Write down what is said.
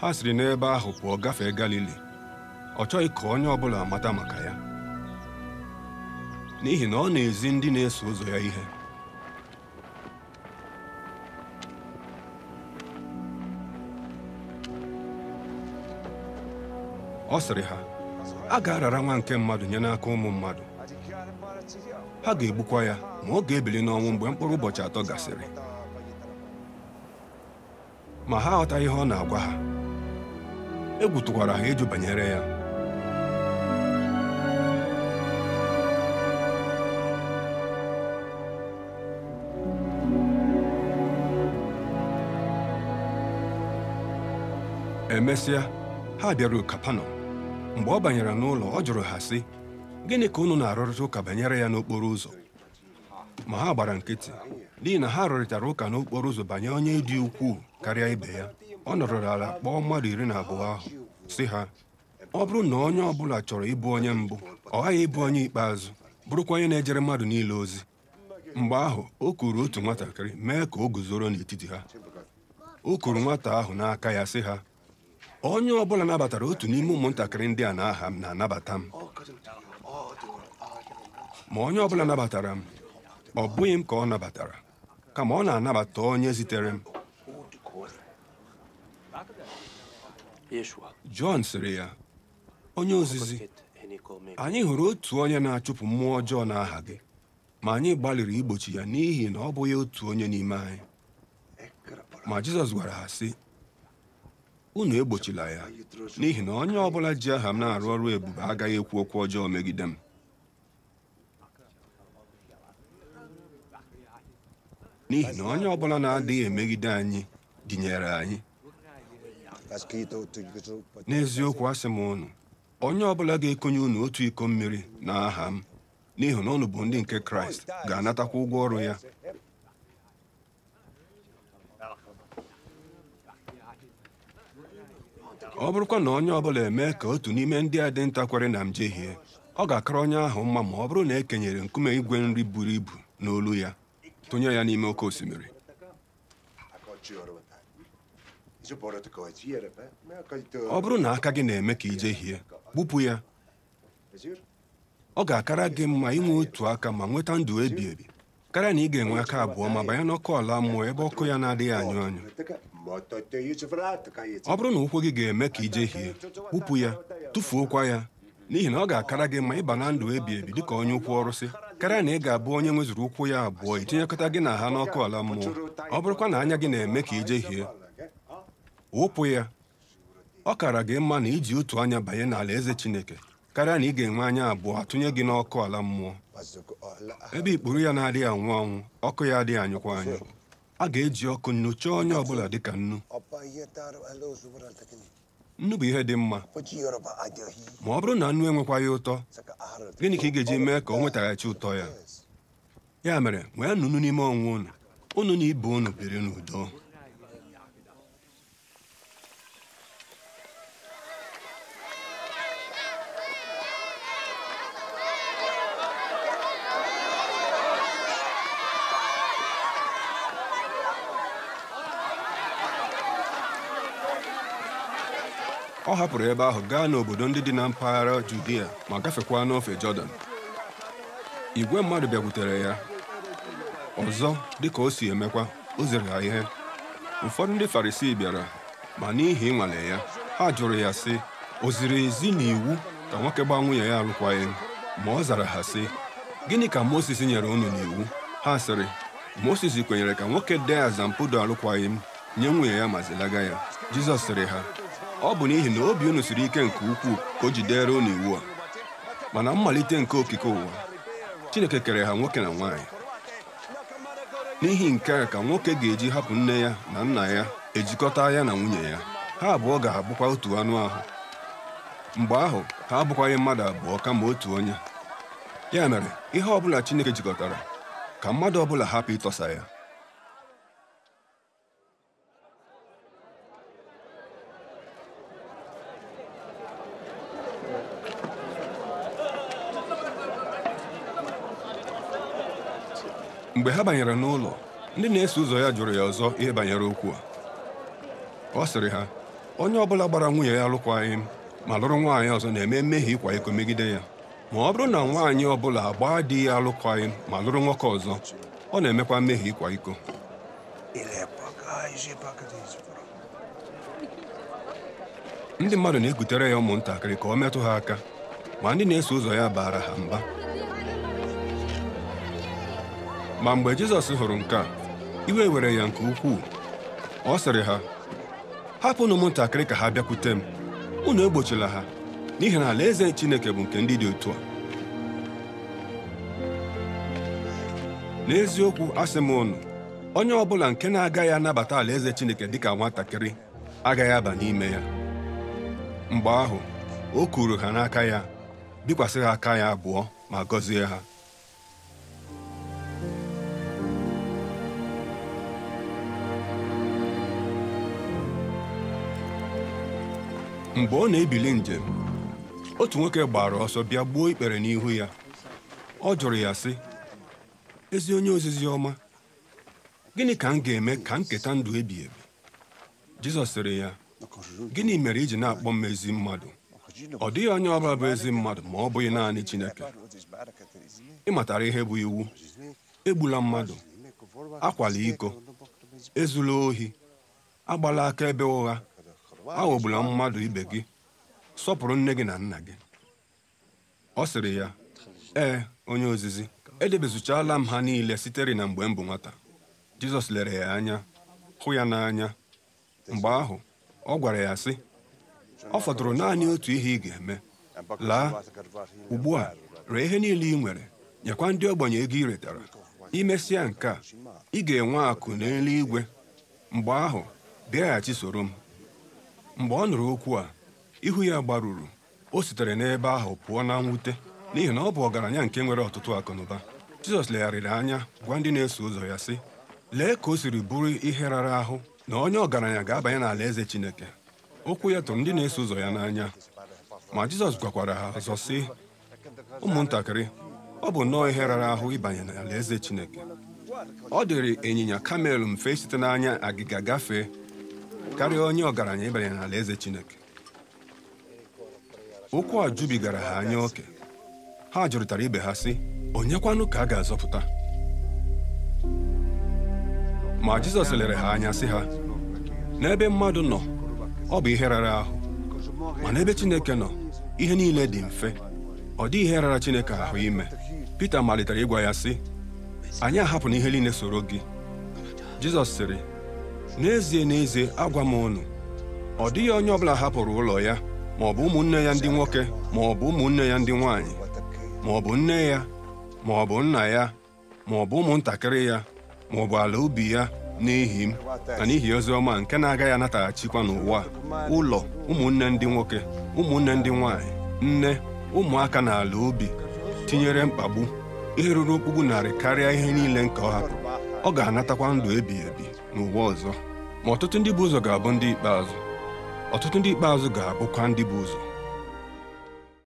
ha siri n'ebe ahụ pụọ gafee Galili ọ chọghị ka onye ọ bụla mata maka ya n'ihi na ọ na-ezi ndị na-eso ụzọ ya ihe ọ sịrị ha a ga-arara nwa nke mmadụ nye n'aka ụmụ mmadụ ha ga-egbukwa ya ma ọ ga-ebili n'ọnwụ mgbe mkpụrụ ụbọchị atọ gasịrị ma ha aghọtaghị ihe ọ na-agwa ha egwu tụkwara ha ịjụ banyere ya emesịa ha bịaruo kapanọm mgbe ọ banyere n'ụlọ ọ jụrụ ha sị gịnị ka unu na-arụrịta ụka banyere ya n'okporo ụzọ ma ha gbara nkịtị n'ihi na ha rụrịtara ụka n'okporo ụzọ banye onye dị ukwuu karịa ibe ya ọ nọrọ ala kpọọ mmadụ iri na abụọ ahụ si ha ọ bụrụ na onye ọ bụla chọrọ ịbụ onye mbụ ọ ghaghị ịbụ onye ikpeazụ bụrụkwa onye na-ejere mmadụ niile ozi mgbe ahụ o kuru otu nwatakịrị mee ka o guzoro n'etiti ha o kuru nwata ahụ n'aka ya si ha onye ọ bụla nabatara otu n'ime ụmụntakịrị ndị a aha m na-anabata m ma onye ọ bụla nabatara m ọ bụghị m ka ọ nabatara kama ọ na-anabata onye zitere m Jọn sịrị ya onye ozizi anyị hụrụ otu onye na-achụpụ mmụọ ọjọọ n'aha gị ma anyị gbalịrị igbochi ya n'ihi na ọ bụghị otu onye n'ime anyị ma Jizọs gwara ha sị unu egbochila ya n'ihi na onye ọ bụla ji aha m na-arụ ọrụ ebube agaghị ekwu okwu ọjọọ megide m n'ihi na onye ọ bụla na-adịghị emegide anyị dịnyere anyị n'eziokwu asị m unu onye ọbụla ga-ekonye unu otu iko mmiri na aha m n'ihi na ụnụ bụ ndị nke kraịst ga-anatakwa ụgwọ ọrụ ya ọ bụrụkwa na onye ọbụla emee ka otu n'ime ndị a dị ntakwere na njehie ọ ga-akara onye ahụ mma ma ọ bụrụ na e kenyere nkume igwe nri buru ibu n'olu ya tụnye ya n'ime oke osimiri ọ bụrụ na aka gị na-eme ka ije hie gbupụ ya ọ ga-akara gị mma inwe otu aka ma nweta ndụ ebi ebi karịa na ị ga-enwe aka abụọ ma banye n'ọkụ ala mmụọ ebe ọkụ ya na-adịghị anyụ anyụ ọ bụrụ na ụkwụ gị ga-eme ka ije hie kpụpụ ya tụfuokwa ya n'ihi na ọ ga-akara gị ma ịba na ndụ ebi ebi dịka onye ụkwụ ọrụsị karịa na ị ga-abụ onye nwezuru ụkwụ ya abụọ itinyekọta gị na ha n'ọkụ ala mmụọ ọ bụrụkwa na anya gị na-eme ka ije hie wụpụ ya ọ kara gị mma na iji otu anya banye n'ala eze Chineke karịa na ị ga-enwe anya abụọ atụnye gị n'ọkụ ala mmụọ ebe ikpuru ya na-adịghị anwụ anwụ ọkụ ya adịghị anyụkwa anyụ a ga-eji ọkụ nnu chọọ onye ọbụla ka nnu nnu bụ ihe dị mma ma ọ bụrụ na nnu enwekwaghị ụtọ gịnị ka ị ga-eji mee ka ọ nwetaghachi ụtọ ya ya mere nwee nunu n'ime ọnwụ unu unu na ibe unu biri n'udo ọ hapụrụ ebe ahụ gaa n'obodo ndị dị na mpaghara Judia ma gafekwa n'ofe Jọdan igwe mmadụ bịakwutere ya ọzọ dịka o si emekwa o zere ha ihe ụfọdụ ndị Farisii bịara ma n'ihi ịnwale ya ha jụrụ ya sị o ziri ezi iwu ka nwoke gbaa nwunye ya alụkwaghị ma ọ zara ha sị gịnị ka Mozis nyere unu n'iwu ha sịrị Mozis kwenyere ka nwoke dee azampụdo alụkwaghị m nye nwunye ya ma zilaga ya Jizọs sịrị ha ọ bụ n'ihi na obi unu siri ike nke ukwuu ka o jidere unu iwu a mana mmalite nke okike ụwa Chineke kere ha nwoke na nwaanyị n'ihi nke a ka nwoke ga-eji hapụ nne ya na nna ya ejikọta ya na nwunye ya ha abụọ ga-abụkwa otu anụ ahụ mgbe ahụ ha abụkwaghị mmadụ abụọ kama otu onye ya mere ihe ọ Chineke jikọtara ka mmadụ ọ hapụ ịtọsa ya mgbe ha banyere n'ụlọ ndị na-eso ụzọ ya jụrụ ya ọzọ ihe banyere okwu a ọ sịrị ha onye ọbụla gbara nwunye ya alụkwaghịm m ma lụrụ nwaanyị ọzọ na-eme mmehie ịkwa iko megide ya ma ọ bụrụ na nwaanyị ọbụla gbaa di ya alụkwaghị ma lụrụ nwoke ọzọ ọ na-emekwa mmehie ịkwa iko ndị mmadụ na-ekutere ya ụmụntakịrị ka ọ metụ ha aka ma ndị na-eso ụzọ ya baara ha mba ma mgbe Jizọs hụrụ nke a iwe were ya nke ukwuu ọ sịrị ha hapụnụ ụmụntakịrị ka ha bịakwute m unu egbochila ha n'ihi na alaeze Chineke bụ nke ndị dị otu a n'eziokwu asị m unu onye ọbụla nke na-agaghị anabata alaeze Chineke dịka nwatakịrị agaghị aba n'ime ya mgbe ahụ o kuru ha n'aka ya bikwasị ha aka ya abụọ ma gọzie ha mgbe ọ na-ebili njem otu nwoke gbara ọsọ bịa gbuo ikpere n'ihu ya ọ jụrụ ya sị ezi onye ozizi ọma gịnị ka m ga-eme ka nketa ndụ ebi ebi jizọs sịrị ya gịnị mere iji na-akpọ m ezi mmadụ ọ dịghị onye ọbụla bụ ezi mmadụ ma ọ bụghị naanị chineke ịmatara ihe bụ iwu egbula mmadụ akwala iko ezula ohi agbala aka ebe ụgha aghọgbula mmadụ ibe gị sọpụrụ nne gị na nna gị ọ sịrị ya ee onye ozizi edebezuchala m ha niile sitere na mgbe m bụ nwata jizọs lere ya anya hụ ya n'anya mgbe ahụ ọ gwara ya sị ọ fọdụrụ naanị otu ihe ị ga-eme laa ugbu a ree ihe niile ị nwere nyekwa ndị ogbenye ego ị retara imesịa nke a ị ga-enwe akụ n'eluigwe mgbe ahụ bịaghachi soro m mgbe ọ nụrụ okwu a ihu ya gbaruru o sitere n'ebe ahụ pụọ na mwute n'ihi na ọ bụ ọgaranya nke nwere ọtụtụ akụnụba Jizọs legharịrị anya gwa ndị na-eso ụzọ ya sị lee ka o siri bụrụ ihe rara ahụ na onye ọgaranya ga-abanye n'ala eze Chineke okwu ya tụrụ ndị na-eso ụzọ ya n'anya ma Jizọs gwakwara ha ọzọ sị ụmụntakịrị ọ bụ nnọọ ihe rara ahụ ịbanye n'ala eze Chineke ọ dịrị ịnyịnya kamel mfe site n'anya agịga gafee karịa onye ọgaranya ịbanye eze Chineke okwu a jubigara ha anya oke ha jụrịtara ibe ha sị onyekwanụ ka a ga-azọpụta ma Jizọs lere ha anya sị ha n'ebe mmadụ nọ ọ bụ ihe rara ahụ ma n'ebe Chineke nọ ihe niile dị mfe ọ dị ihe rara Chineke ahụ ime Pita malitere ịgwa ya sị anyị ahapụ na ihe niile soro gị Jizọs sịrị n'ezie n'ezie agwa m unu ọ dịghị onye ọbụla hapụrụ ụlọ ya ma ọ bụ ụmụnne ya ndị nwoke ma ọ bụ ụmụnne ya ndị nwanyị ma ọ bụ nne ya ma ọ bụ nna ya ma ọ bụ ụmụntakịrị ya ma ọ bụ ala ubi ya n'ihi m na n'ihi ozi ọma nke na-agaghị anataghachikwa n'ụwa ụlọ ụmụnne ndị nwoke ụmụnne ndị nwanyị nne ụmụaka na ala ubi tinyere mkpagbu ihe ruru okpukpu narị karịa ihe niile nke ọ hapụ ọ ga-anatakwa ndụ ebighị ebi n'ụwa ọzọ ma ọtụtụ ndị bụ ụzọ ga-abụ ndị ikpeazụ ọtụtụ ndị ikpeazụ ga-abụkwa ndị bụ ụzọ